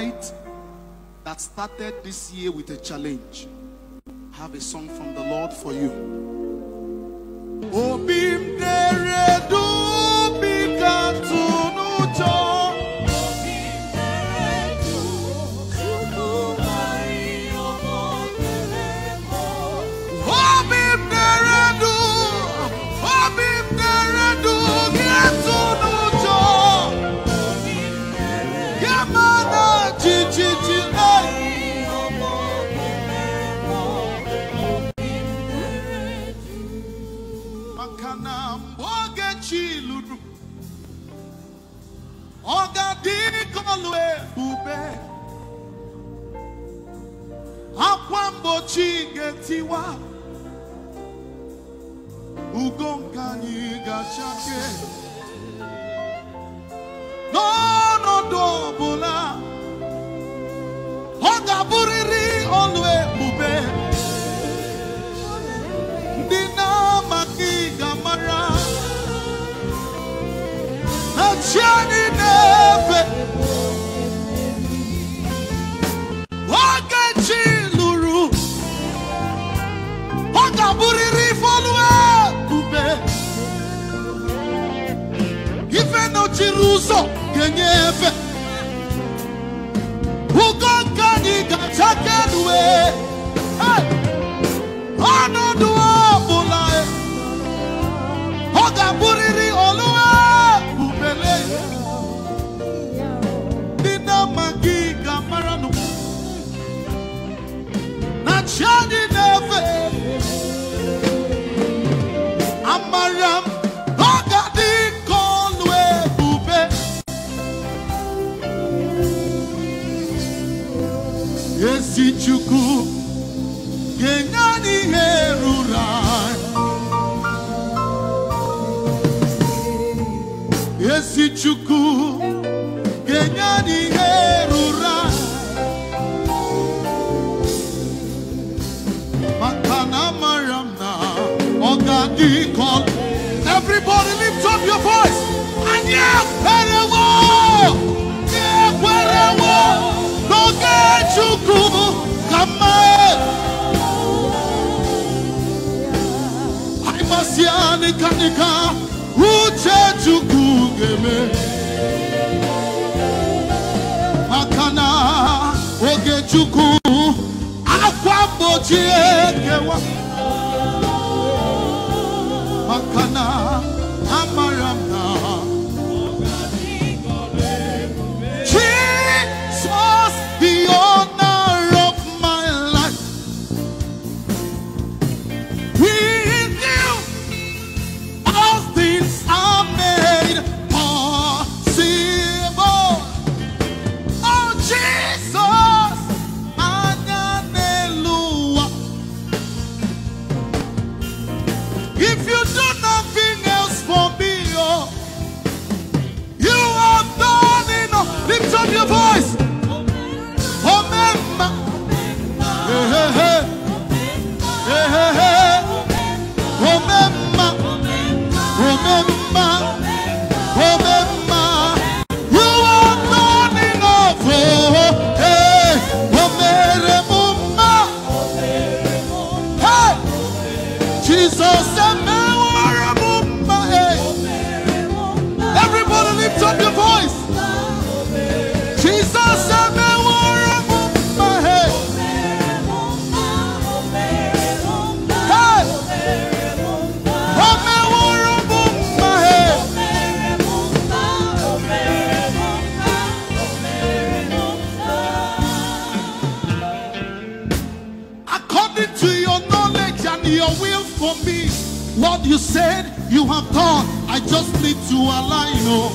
fight that started this year with a challenge. I have a song from the Lord for you. children. ọ ga-adịkọlụ ebube akwa mgbochi ga-etiwa ugo nke anyị ga-achake n'ọnọdụ So ga ga-enyefe ni nke anyị chukwu ga-enye anyị ihe ruru anyị ezi chukwu ga-enye anyị ihe everybody lift up your voice and anyị nịkanịka uche Chukwu oge akwa ekewa maka what you said you have done. I just need to align. Oh.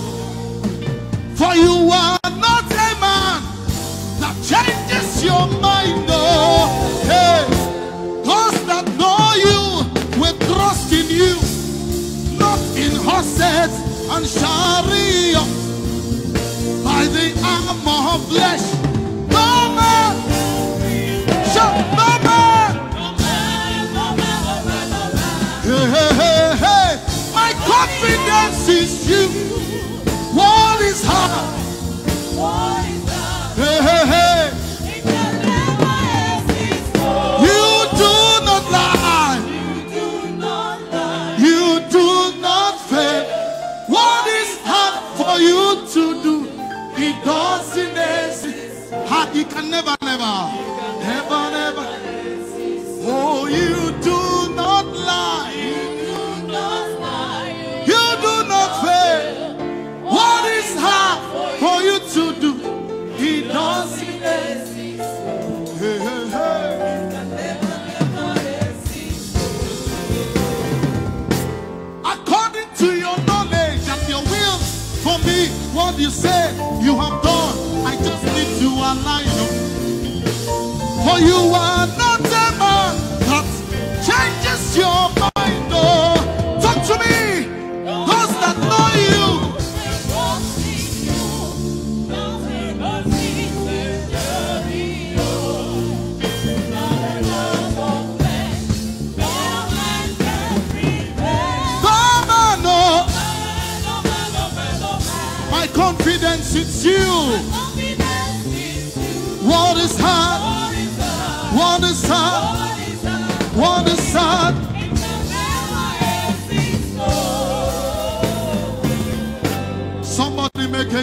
For you are not a man that changes your mind. Oh. Hey. Those that know you will trust in you, not in horses and chariots, by the arm of flesh. you, what is hard. What is Hey, hey, hey. You do not lie. You do not lie. You do not fail. What is hard for you to do? It doesn't exist. It can never, never, never, never. Oh, you. to your knowledge and your will for me. What you say you have done, I just need to align. For you are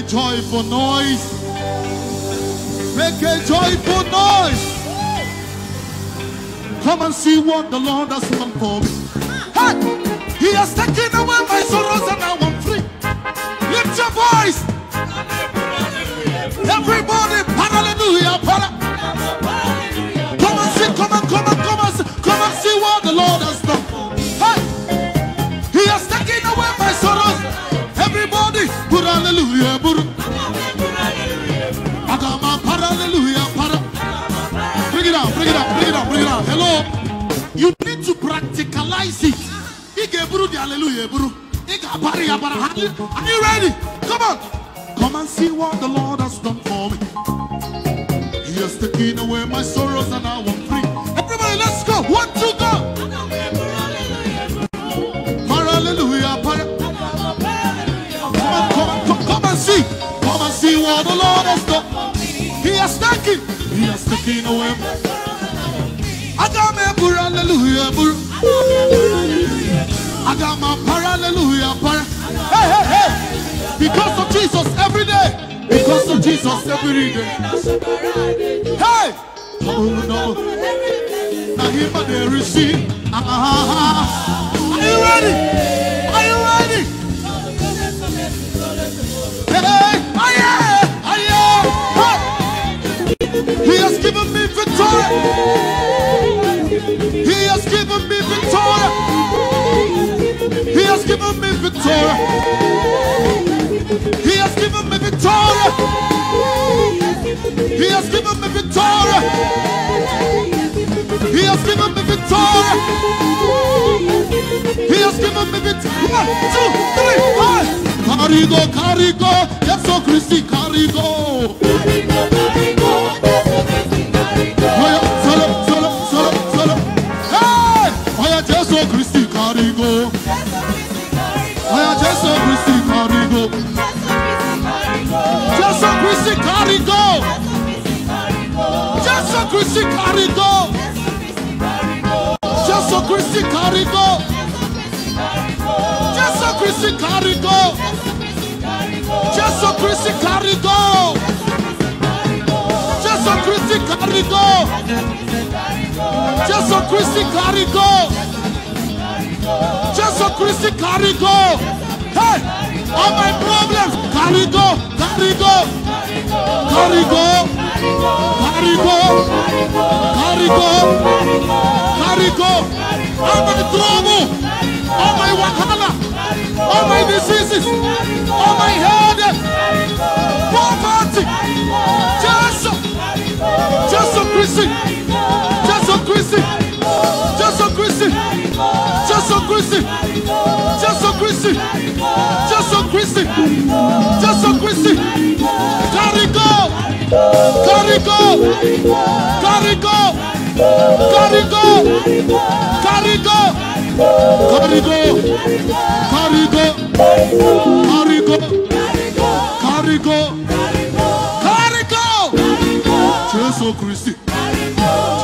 a joy for nós. Make a joyful noise! Come and see what the Lord has done for me. Hey, he has taken away my sorrows and now I'm free. Lift your voice. Everybody, hallelujah. Come and see, come and come and come and see, come and see what the Lord. Put hallelujah, put Atama para hallelujah, para. Bring it out, bring it out, bring it out, bring it out. Hello. You need to practicalize it. Ige buru the hallelujah, buru. Ige bari abara. Are you ready? Come on. Come and see what the Lord has done for me. He has taken away my sorrows and I'm free. Everybody, let's go. One, two, kí inú ẹ mú. Adam Hey hey hey! Because of Jesus every day. Because of Jesus every day. Hey! Are you ready? He has given me victory. He has given me victory. He has given me victory. He has given me victory. He has given me victory. He has given me victory. One, two, three, four. Carigo, carigo, yes, so oh, Christi, carigo. carigo. Christi carigo. Jésù Christi carigo. Jésù Christi carigo. Jésù Christi carigo. Jésù Christi carigo. Jésù Christi carigo. Jésù Christi carigo. Jésù Christi carigo. Jésù Christi carigo. Christi, carry go. Hey, all my problems, carry go, carry go, carry go, carry go, carry go, carry go. All my trouble, all my wahala, all my diseases, all my headache. Kristi Jésù Kristi Jésù Kristi Jésù Kristi kárígò kárígò kárígò kárígò kárígò kárígò kárígò kárígò kárígò kárígò Jésù Kristi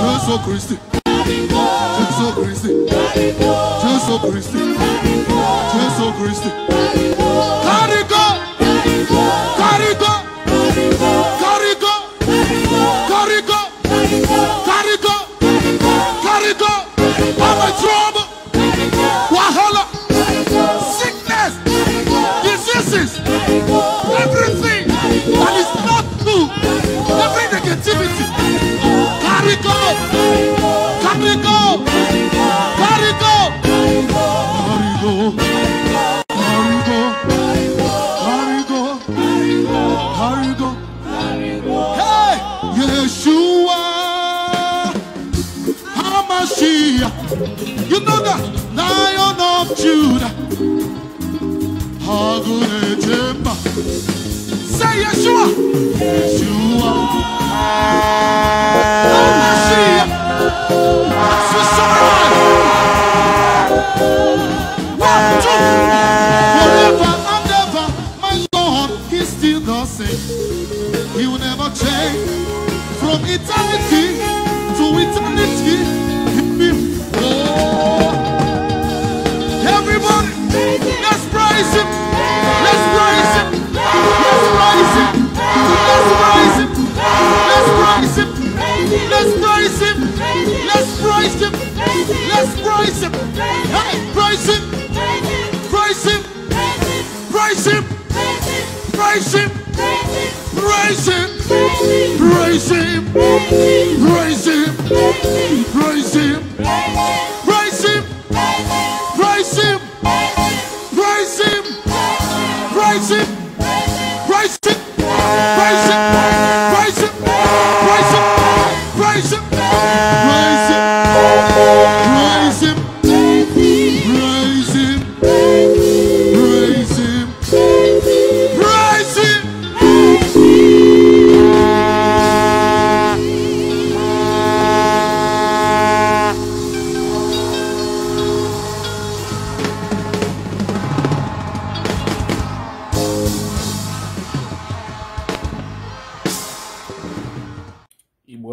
Jésù Kristi. Jésù Kristi Jésù Kristi Jésù Kristi kárígó kárígó kárígó kárígó kárígó kárígó ọmọ trouble wàhálà sickness diseases everything that is. Hey, Yeshua, Hamashiach, you know the Lion of Judah. Hagunejemba. Say Yeshua, Yeshua, Hamashiach. cannot from eternity to eternity. Oh. Everybody, let's praise Him. Let's praise Him. Let's praise Him. Let's praise Him. Let's praise Him. Let's praise Him. Let's praise Him. Let's praise Him. praise Him. Praise Him. Praise Him. Praise Him. Praise Him. Raise him, raise him, raise him, raise him, raise him, raise him, raise him, raise him.